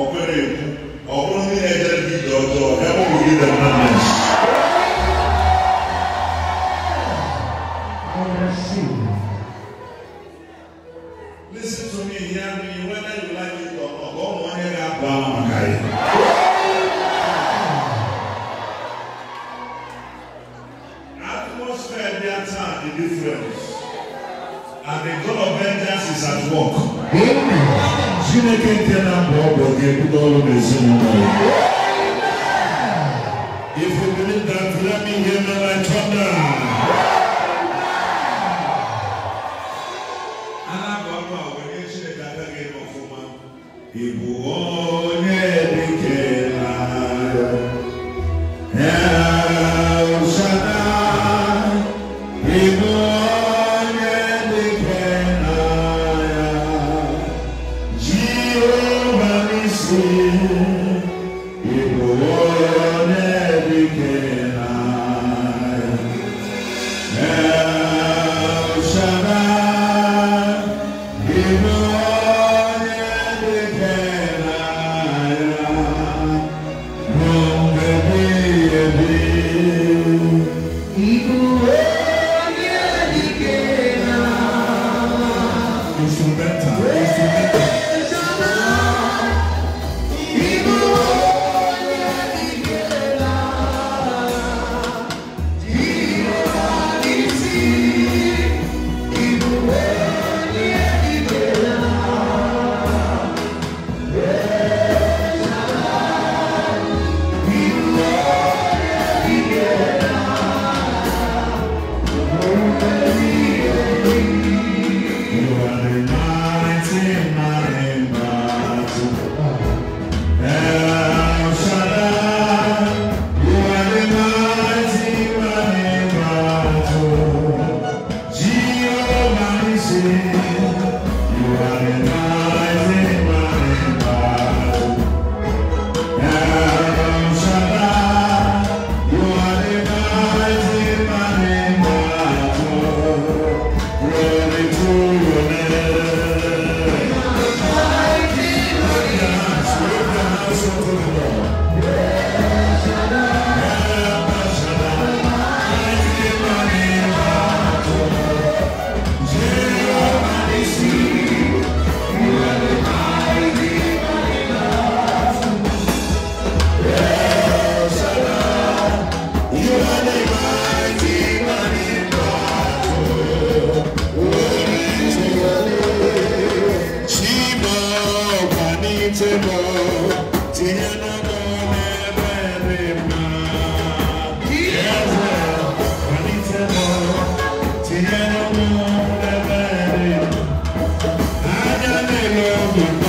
ọ̀gbẹ́rẹ́ èkú ọ̀gbọ́n ní ẹ̀jẹ̀ bí dọ̀dọ̀ ẹ̀wọ̀n òye dẹ̀mọ́nẹ̀s. Listen to me, hear whether you like it or not, God won't hear that bad man Atmosphere there time and the God of vengeance is at work. Amen. chineke nke na-abụ ọbụ ga-ebudo ọrụ n'ezinụlọ ya Yeah.